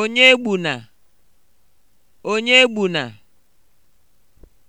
onye gbuna onye gbuna